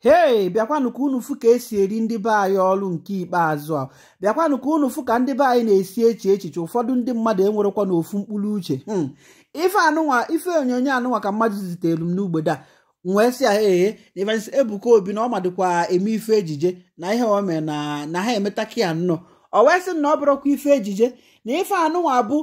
hei bịakwanụ ka unu fụ ka esi eri ndị be anyị ọrụ nke ikpeazụ a bịakwanụ ka unu fụ ka ndị be anyị na-esi eche echiche ụfọdụ ndị mmadụ enwerekwa n'ofu mkpụrụ uche hmm. ife anụnwa ife onyonyo anụnwa ka mmadụ zitelu m n'ugbede a wee sị ahụ ee na evansi ebuka obi na ọ madụkwa eme ife ejije na ihe o na na ha emetaki ya nnọọ o wee sị na ọ bụrụkwa ife ejije na ife anụnwa bụ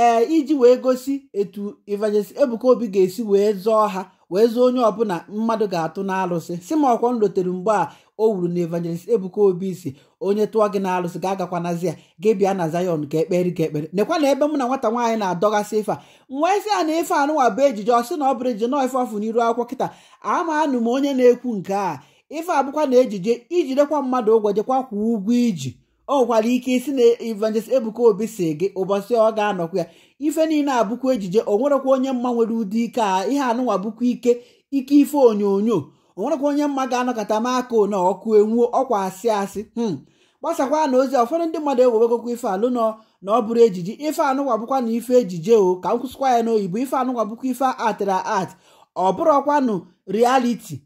ee eh, iji wee gosi etu evansi ebuka obi ga-esi wee zọọ ha wee onye ọbụla mmadụ ga-atụ n'alụsị si m ọkwọ lotere mgbe a o wuru na evangelist Ebuka Obi si onye tụọ gị n'alụsị ga na zia gị bịa na Zion ka ekperi ka ekpere nekwa na ebe m na nwata nwaanyị na-adọgasị ife a nwee sị a na ife anụwa bụ ejije ọ sị na ọ bụrụ ejije nọọ ife ọfụ n'iru akwụkwọ kịta ama anụ m onye na-ekwu nke a ife abụkwa na ejije ijidekwa mmadụ ụgwọ jekwa kwuo ụgwọ iji ọ nwekwara ike isi na evangelist ebuka obi si gị ụbọchị ọ ga-anọkwa ya ife niile abụkwa ejije o nwerekwa onye mma nwere ụdị ike a ihe anụnwa bụkwa ike ike ife onyonyo o nwerekwa onye mma ga-anọkọta m aka one ọkụ enwuo ọkwa asị asị hmm. gbasakwa na ozi ụfọdụ ndị mmadụ ewewegokwa ife alụ nọ na ọ bụrụ ejije ife anụnwa bụkwa na ife ejije o ka m kwụsịkwa ya oyibo ife anụnwa bụkwa ife atịra at ọ bụrụkwanụ rialiti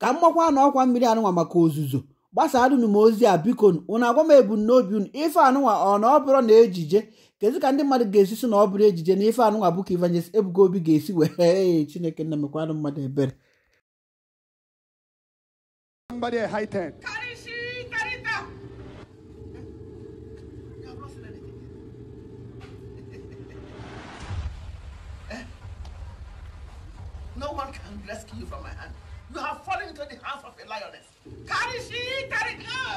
ka m na ọkwa mmiri anụnwa maka ozuzo gbasarụnụ m ozi a biko ụna agwa m ebumnobi unu ife anụnwa ọ na ọ bụrụ na ejije kezi ka ndị mmadụ ga-esi si na ọ bụrụ ejije na ife anụnwa bụ ka Evangelist Obi ga-esi wee Chineke nna mekwanụ mmadụ ebere No one can rescue you from my hand. You have fallen into the hands of a lioness. Carry she, carry go!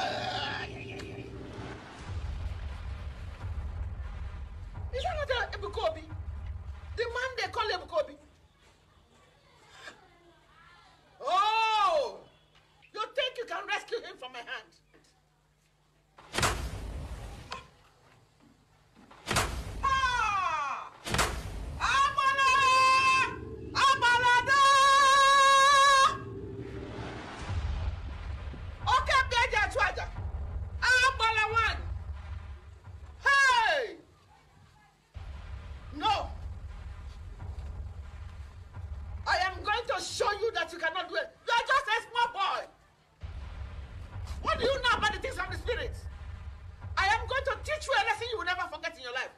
trying to show you that you cannot do it. You are just a small boy. What do you know about the things of the spirit? I am going to teach you a lesson you will never forget in your life.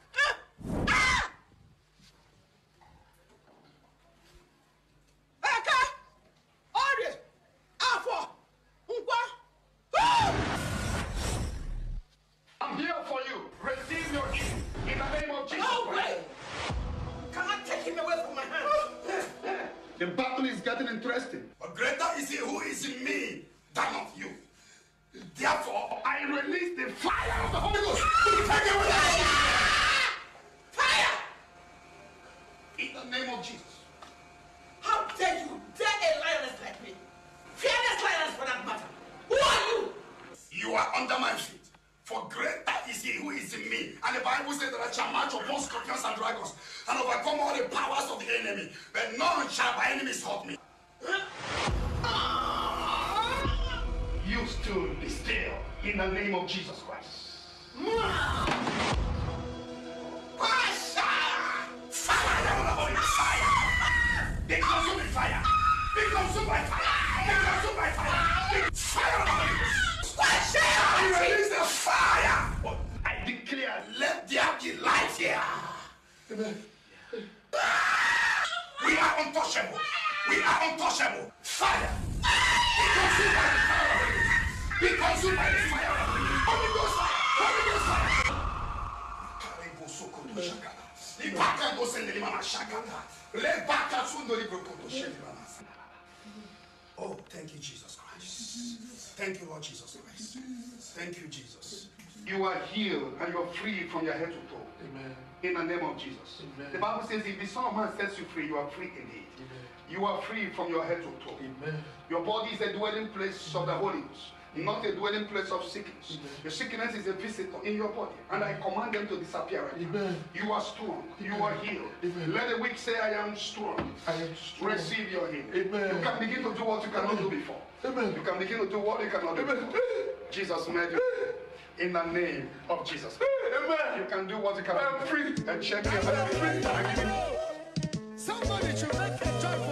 The battle is getting interesting. But greater is he who is in me than of you. Therefore, I release the fire of the Holy Ghost Bible says that I shall march upon scorpions and dragons and overcome all the powers of the enemy, but none shall by enemies hurt me. Ah! You stood be still in the name of Jesus Christ. Fire! Be consumed by fire! Be consumed by fire! Fire! Fire! Fire! fire! Fire! Fire! Fire! fire! Fire! Fire! Fire! fire! Fire! Fire! Fire! fire! Elijah. Amen. We are untouchable. We are untouchable. Fire. Be consumed by the fire. Be consumed by the fire. Holy Ghost fire. Holy Ghost fire. Oh, thank you, Jesus Christ. Thank you, Lord Jesus Christ. Thank you, Jesus you are healed and you are free from your head to toe. Amen. In the name of Jesus. Amen. The Bible says, if the Son of Man sets you free, you are free indeed. Amen. You are free from your head to toe. Amen. Your body is a dwelling place of the Holy Ghost not a dwelling place of sickness. Amen. Your sickness is a visitor in your body, and I command them to disappear. Right Amen. You are strong. Amen. You are healed. Amen. Let the weak say, I am strong. I am strong. Receive your healing. You can begin to do what you cannot do before. You can begin to do what you cannot do before. Jesus made you in the name of Jesus. Amen. You can do what you can. I'm free. And check your Somebody should make a joyful.